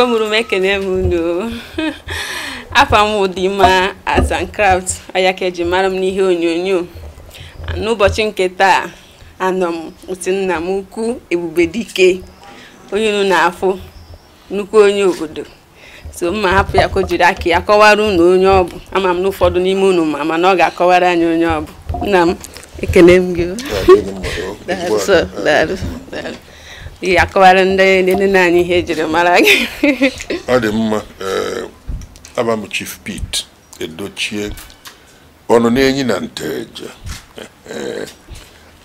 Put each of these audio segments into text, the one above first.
igwe mụrụ m ekele m unu afọ m Udimma Arts and Crafts ọya ka eji mara m n'ihe onyonyo n'ụbọchị nke taa anọ m otu nna m ukwu Ebubedike onye unu na-afụ nnukwu onye obodo so mma hapụ ya ka o jiri aka ya kọwara unu onye ọ bụ ama m na ụfọdụ n'ime unu ma mana ọ ga-akọwara anyị onye ọ bụ nna m ekele m gị ị akọwara ndị nne anyị ihe jiri mara gị ọ dị mma eh, aba m chief pete edochie ọnụ na-enyi na nteje eh,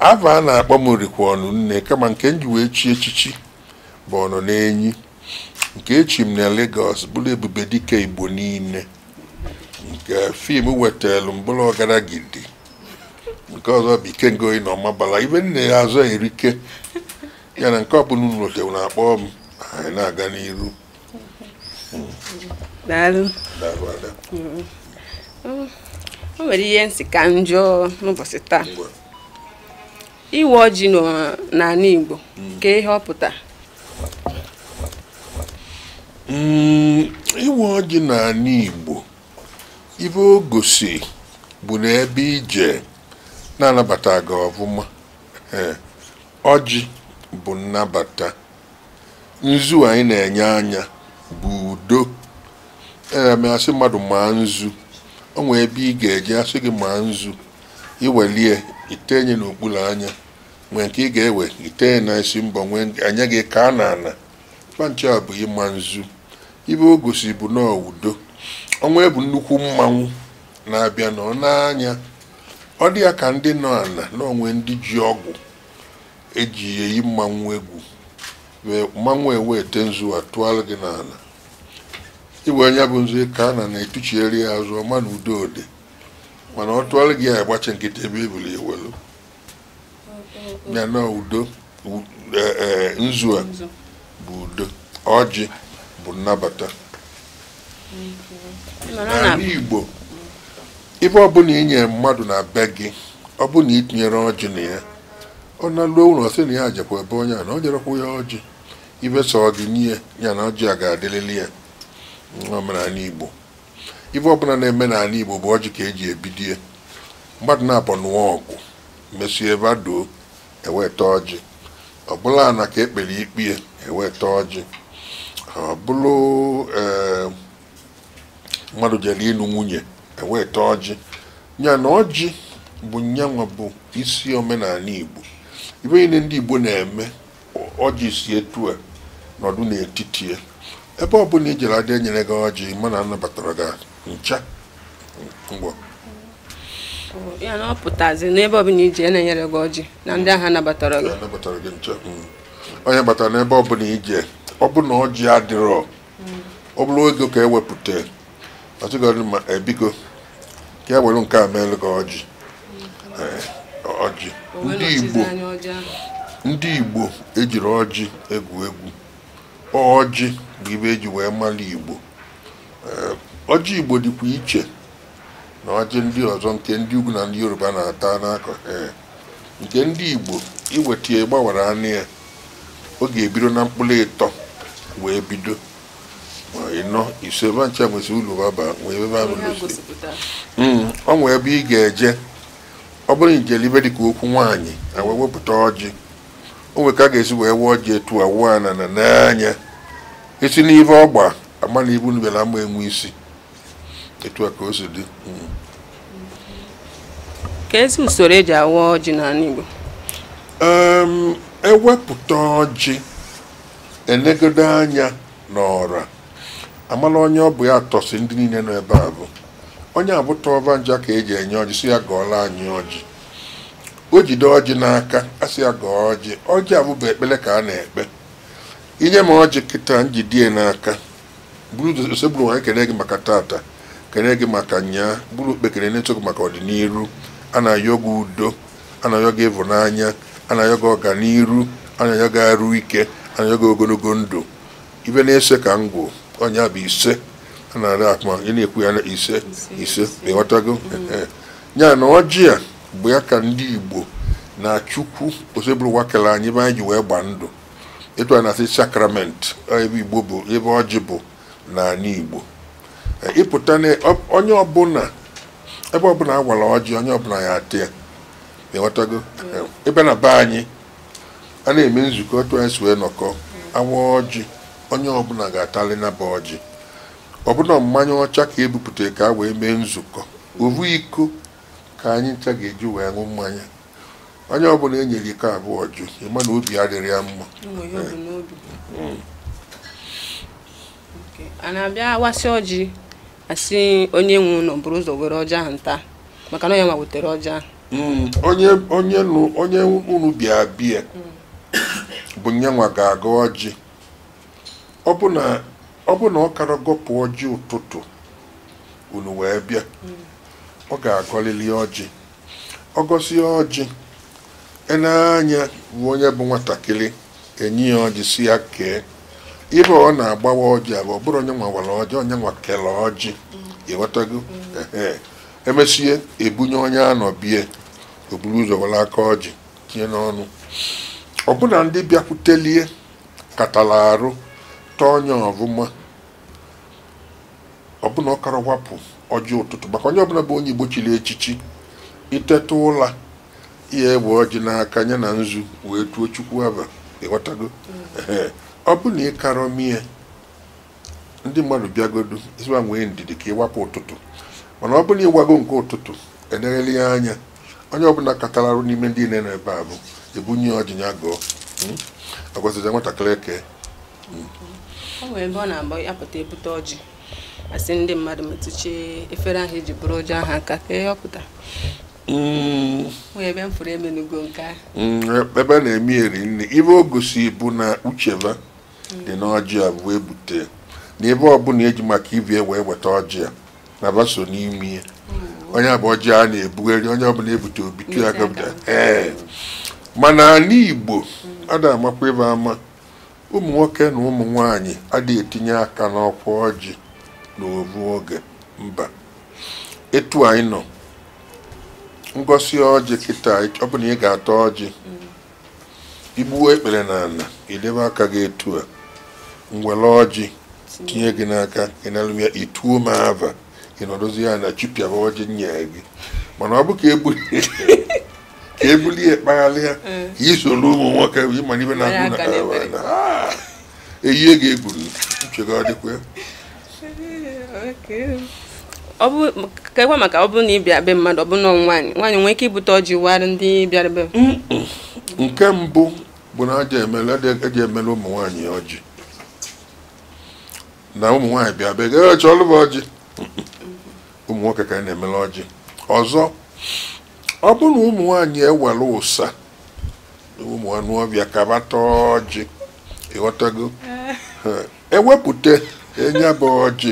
ava a na-akpọ m rikwa ọnụ nne kama nke m ji wee chi echichi bụ ọnụ na-enyi nke echi m na legos bụrụ ebube dike igbo niile nke fim wetara mbụrụ ọgara gidi nke ọzọ bụ ikengoyi na ọmabala ibe nne ya azụ erike ya na nke ọbụla unu otewu na-akpọ m anyị na-aga n'iru mm-hmm. o nwere ihe nsị ka njọ n'ụbọchị taa iwe ọjị n'ala Igbo mm. ka ihe ọ pụta mm, iwe ọjị n'ala Igbo ibe o gosi bụ na ebe ije na-anabata gị ọvụma ọjị bụ nnabata nzu anyị na-enye anya bụ udo ee asị mmadụ maa nzu ọ nwee ebe ị ga-eje asị gị maa nzu iwelie itenye n'okpuru anya nwee nke ị ga-ewe itenye na isi mbọ nwee anya gị ka a na ana kpanche bụ ịma nzu ibe o gosi bụ na udo ọnwa bụ nnukwu mmanwụ na-abịa nọ n'anya ọ dị ya ka ndị nọ ala na onwe ndị ji ọgwụ eji eyi mmanwụ egwu mmanwụ ewe ete nzu atụọla gị n'ala ịgba onye bụ nzu ka a na na-etuchieri ya azụ ọma na udo ode mana ọ tụọla gị ya agbachi nkịta ebe ebili ewelu ya na udo e, e, nzu a bụ udo ọjị bụ nnabata n'ala Igbo ebe ọbụla i nyere mmadụ na be gị ọ bụ na itinyere ọjị na ya ọ na-alụ ụlọ sị na ya jekwa ebe onye a na o jerekwa ya ọjị ibe sọ ọdịnihe ya na ọjị a ga-adịlịlị ya n'omenala igbo ibe ọbụla na-eme n'ala igbo bụ ọjị ka eji ebidie mmadụ na-abụ nụọ ọgụ mesie ebe adoo eweta ọjị ọbụla na ka ekpere ikpe eweta ọjị ọbụlụ ee ehm, mmadụ jere ịlụ nwunye eweta ọjị ya na ọjị bụ nyanwa bụ isi omenala igbo ibe niile ndị igbo na-eme ọjị si etu a nọdụ n'etiti ya ebe ọ bụla ijere adị enyere gị ọjị mana anabatara gị ncha ya na ọ n'ebe ọbụla ije na-enyere gị na ndị agha nabatara gị ncha onye mm. batara n'ebe ọbụla ije ọ bụ na ọjị adịrọ ọ bụrụ ego ka ewepụta ma ebigo ka e, e, e nke a meelụ gị ọjị mm. ọjị ndị igbo ndị igbo ejiri ọjị egwu egwu ọjị bụ ibe eji wee mara igbo ọjị igbo dịkwa iche na ọjị ndị ọzọ nke ndị ugwu na ndị yoruba na-ata n'akọ nke ndị igbo iweta ya gbawara anụ ya ọ ga-ebido na mkpụrụ ịtọ wee bido ịnọ ise ebe ncha e baba nwee ebe ọ mm, nwee ebe ị ga-eje ọ bụrụ na ijele ibe dịka okwu nwaanyị wee wepụta ọjị o nwere ka a ga-esi wee wee ọjị etu awụọ na na n'anya esi n'ibe ọgba ama na ibu nubela ama enwe isi etu a ka o si dị hmm. ka ezi usoro eji awa ọjị n'ala Igbo ewepụta ọjị enegodo anya n'ọra amala onye ọ bụ ya tọsi ndị niile nọ ebe a bụ onye abụ ọba nja ka eji enye ọjị si ya gọọla anyị ọjị o jide ọjị n'aka asị ya gọọ ọjị ọjị abụba ekpele ka a na-ekpe inye m ọjị kịta njidie n'aka bụrụ nwaanyị kene gị maka tata kene gị maka nyaa bụrụ okpekere na-eto gị maka ọdịnihu a na-ayọ gị udo a na-ayọ gị ịvụnanya a na-ayọ gị ọganihu a na-ayọ gị arụ ike a na-ayọ gị ogologo ndụ ibe na-ese ka gwụ ọnya bụ ise a na-arị akpa ị na-ekwu ya na ise ise ịghọtago ya na ọjị a bụ ya ka ndị igbo na chukwu osebụrụwa kele anyị ebe anyị ji wee gbaa ndụ ịtụ a na-asị sakramenti ebe igbo bụ ebe ọjị bụ na n'ala igbo e, ịpụta na onye ọbụla ebe ọbụla a gwara ọjị onye ọbụla ya atị ya ịghọtago ebe na be anyị a na-eme nzukọ tụọ anyị si wee nọkọ awa ọjị onye ọbụla ga-atalị na ba ọjị ọbụna mmanya ọcha ka ebupụtara ka wee mee nzukọ ovu iko ka anyị ncha ga-eji wee ṅụ mmanya onye ọbụla e nyere iko abụọ jụ ịma na obi adịrị ya mma hmm. a na-abịa wasị ọjị asị onye nwe ụlọ bụrụ ụzọ were ọjị ahụ nta maka na ya ma wetara ọjị ahụ hmm. onye onye unu bịa bịa hmm. bụ nyanwa ga-aga ọjị ọ bụ na ọ bụ na ọ kara gọpụ ọjị ụtụtụ unu wee bịa ọ ga-agọlili ọjị ọ gosi ọjị anya bụ onye bụ nwatakịrị enyi ya ọjị si ya kee ibe ọ na-agbawa ọjị abụ ọ bụrụ onye nwawara ọjị onye nwa kele ọjị ịghọtago emesie ebunye onye anọ bie o ụzọ were aka ọjị tinye n'ọnụ ọbụna ndị bịakwutelie katala arụ tọọ onye ọvụma ọbụna ọkara wapụ ọjị ụtụtụ maka onye ọbụla bụ onye igbo chiri echichi iteta ụla ihe egbe ọjị n'aka ya na nzu wee tuo chukwu aba ịghọtago ee ọ bụ na ịkarọ mie ndị mmadụ bịagodu ịzụwa nwee ndidi ka ịwapụ ụtụtụ mana ọ bụla ịwago nke ụtụtụ eleghele ya anya onye ọbụla arụ n'ime ndị niile n'ebe a bụ ebunye ọjị hmm? ya gụọ agwazija nwatakịrị eke ọ hmm. nwere ebe ọ na agba ya pụta ebute ọjị asị ndị mmadụ metụchie efere ahụ eji bụrụ ụjọ ahụ aka ka ihe ọpụta mm. ebe m fụrụ emenugo nke ahụ mm, ebe na-eme eri nri ibe o gosi bụ na ucheva dị mm. n'ọjị a bụ ebute na ebe ọbụla eji maka ibie wee weta ọjị a na baso n'ime onye abụ ọjị a na-ebugharị onye ọbụla ebute obitu ya gọpụta ee mana ala igbo a da amakwa ebe ama ụmụ nwoke na ụmụ nwanyị adịghị etinye aka n'ọkwa ọjị n'oru oge mba etu anyị nọ ngosi ọjị kịta ọ bụ na ị ga atọ ọjị mm. igbuo ekpere n'ala idebe aka gị etu a ngwere ọjị tinye gị n'aka ịnalụ ya ituo m ava ịnọdụzi ya na chipịaba ọjị nye gị mana ọ bụ ka ebulie kpagharịa ka e isoro mm. ụmụ nwoke ị ịmana ibe na-agụ na ah! eyihe ga-egburu nchega ọ dịkwa ka ekwe maka ọ bụrụ na ị bịa be mmadụ ọ na nwaanyị nwaanyị nwee ike ibute ndị bịara be nke mbụ bụ na eji emele ụmụ nwaanyị ọjị na ụmụ nwaanyị bịa be gị e ọjị ụmụ nwoke ka na-emele ọjị ọzọ ọ bụrụ na ụmụ nwaanyị ewere ụsa ụmụ anụ ọbịa bata ọjị ewepụta e ọjị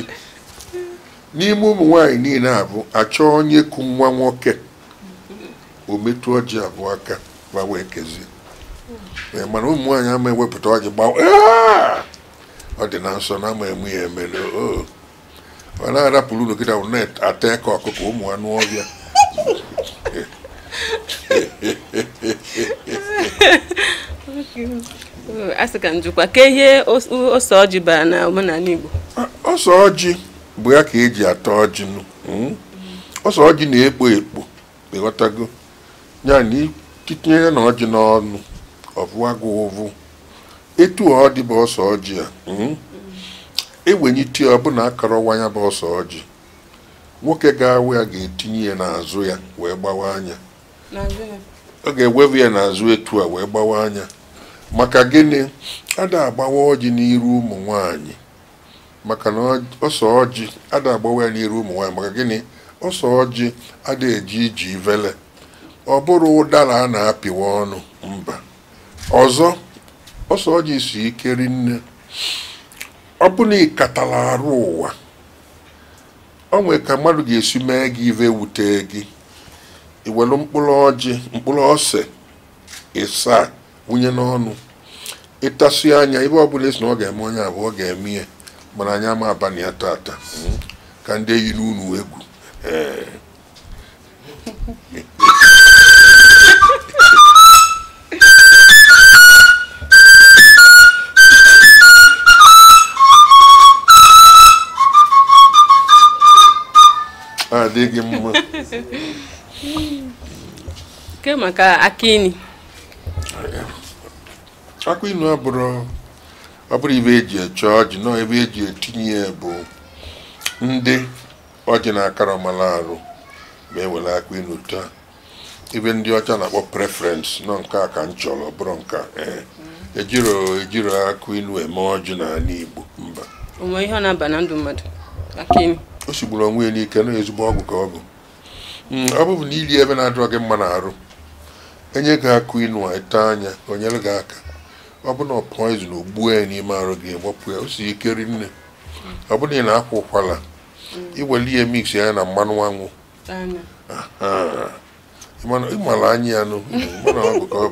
n'ime ụmụ nwaanyị niile a bụ achọ onye ku nwa nwoke o metụ ọjị abụọ aka ma wee kezie eh, mana ụmụ nwaanyị ama ewepụta ọjị gbawa ọ dị na nsọ na ama eme ya emere oh! ọ na-arapụrụ unu kịta wụ na-ata ka ọkụkọ ụmụ anụ ọbịa asị ka njikwa ka ose ọjị bara na omenala Igbo ose ọjị mgbe ya ka eji ata ọjị hmm? ọsọ ọjị na-ekpo ekpo ịghọtago ya na ya na ọjị n'ọnụ gụ ụvụ etu ọ dị bụ ọsọ ọjị a hmm? egbenyiti ọbụna akọrọwa ya bụ ọsọ ọjị nwoke ga-awụ ya ga-etinye ya n'azụ ya wee gbawa anya ọ ga-ewevu ya n'azụ etu a wee gbawa anya maka gịnị ada agbawa ọjị n'iru ụmụ nwanyị maka na ọsọ ọjị ada agbawa ya n'iru ụmụ nwaanyị maka gịnị ọsọ ọjị ada eji iji vele ọ bụrụ ụdara a na-apịwa ọnụ mba ọzọ ọsọ ọjị si ike rinne ọ bụla ịkatara ịkatala arụ ụwa ọ nwere ka mmadụ ga-esi mee gị ive wute gị iwelu mkpụrụ ọjị mkpụrụ ose ịsaa wunye n'ọnụ ịtasị anya ibe ọbụla esi na ọ ga-eme onye abụọ ọ ga-eme mwananyama hapa ni hatata mm-hmm. kande yinunu wegu eh. adigi ah, mma ke maka akini akụ inu ọ bụrụ ibe eji eche ọjị nọ ebe eji etinye ya bụ ndị ọjị na-akara ọmala arụ ma ewere aka inu taa ebe ndị ọcha na-akpọ preferensị nọ nke a ka m chọrọ bụrụ nka eh, mm. ejiro ejiro akụ inu eme ọjị n'ala Igbo mba ihe ọ na-aba na ndụ mmadụ o onwe ya n'ike na ezigbo ọgwụ ka mm, ọ bụ ọ bụbụ na ebe na-adịrọ gị mma na arụ enye gị akụ inu a ete anya onyere gị aka ọ bụ na poizin ogbuo ya n'ime arụ gị gbapụ ya o si ike rinne ọ bụrụ na ị na-akwa ụkwara mm. iwere ihe mix ya na mmanụ anwụ ịmara anya ya nụ eh. o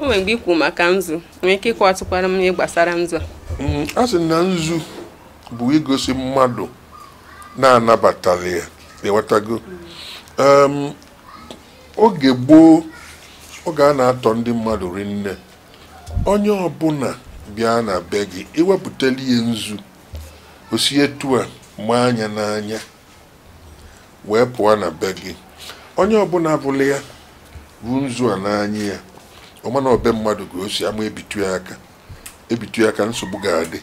nwere mgbe ikwu maka nzu nwee ike ịkwụ ịkwatụkwara m ihe gbasara nzu mm-hmm. a sị na nzu bụ igosi mmadụ na-anabatara ya ewetago oge gboo oge a na-atọ ndị mmadụ rinne onye ọbụla bịa na be gị iwepụtala ihe nzu osi etu a maa anya n'anya wee pụọ na be gị onye ọbụla bụla ya ruo nzu a n'anya ya ọmana ọba mmadụ ga osi ama ebitu aka ebitu aka nsogbu ga-adị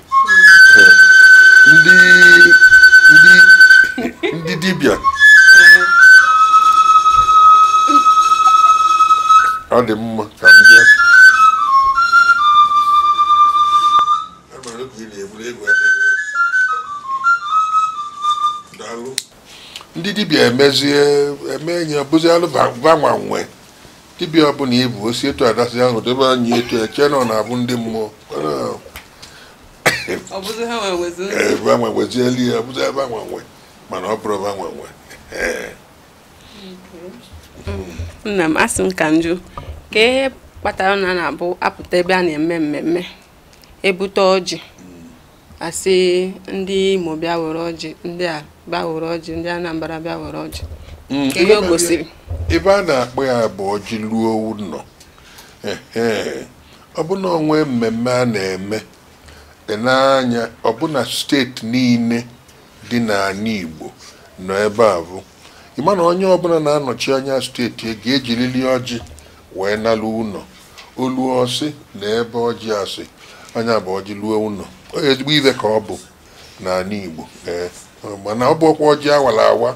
ndị dibịa ọ dị mma ka m bịa e ndị dibịa emezie eme enyi ọbụzialụ gbanwanwe dibịa ọbụla ibu osi etu adasi ahụ debe anyị etu eche nọ na abụ ndị mmụọ gbanwewezieli ya ọbụzi nwe mana ọ bụrụ nwe. Eh. Hmm, nna m asị m ka njụ ka ihe kpatara na na-abụ apụta ebe a na-eme mmemme ebute ọjị asị ndị Imo bịa were ọjị ndị a bịa were ọjị ndị Anambra bịa were ọjị mm. ihe o gosiri ebe a na-akpọ ya bụ ọjị ruo ụlọ ọbụna onwe mmemme a na-eme n'anya ọbụna steeti niile dị n'ala Igbo nọ ebe a bụ ịma na onye ọbụla na-anọchi anya steeti e ga-ejiriri ọjị wee nalụ ụlọ olu ọsị na ebe ọjị asị anya bụ ọjị luo ụlọ ezigbo ibe ka ọ bụ n'ala Igbo ee mana ọ bụkwa ọjị awara awa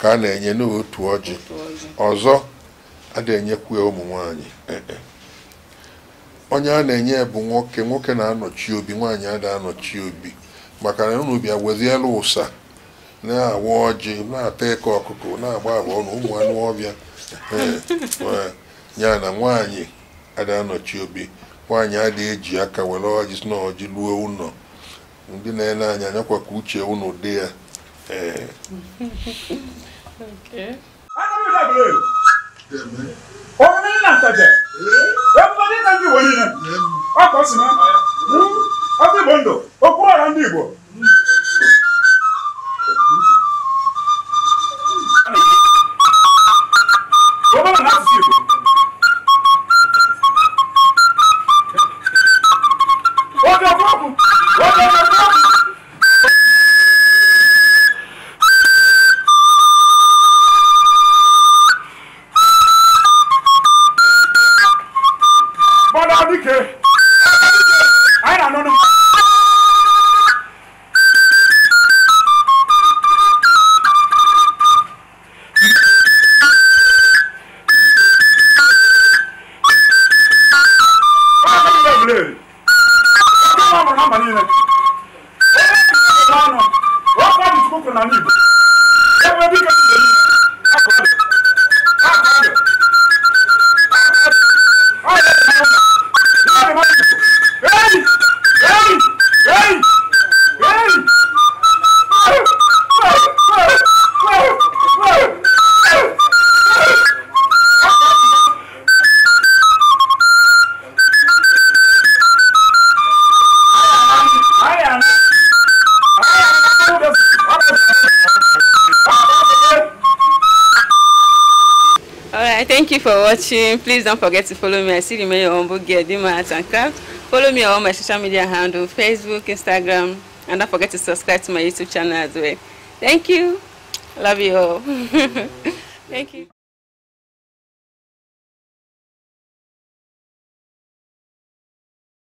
ka a na-enye n'otu ọjị ọzọ a na-enyekwa ụmụ nwanyị e, onye a na-enye bụ nwoke nwoke na-anọchi obi nwaanyị a na-anọchi obi maka na unu bịa ụsa na-awa ọjị na-ata eke ọkụkọ na-agba agba ọnụ ụmụ anụ ọbịa ya na nwaanyị ada anọchi obi nwaanyị adịghị eji aka were ọjị si na ọjị luo ụlọ ndị na-ele anya anyakwa ka uche ụnụ dị ya ee ndị igbo watching. Please don't forget to follow me. I see you remain your humble gear. Dima Art and Craft. Follow me on all my social media handle, Facebook, Instagram. And don't forget to subscribe to my YouTube channel as well. Thank you. Love you all. Thank you.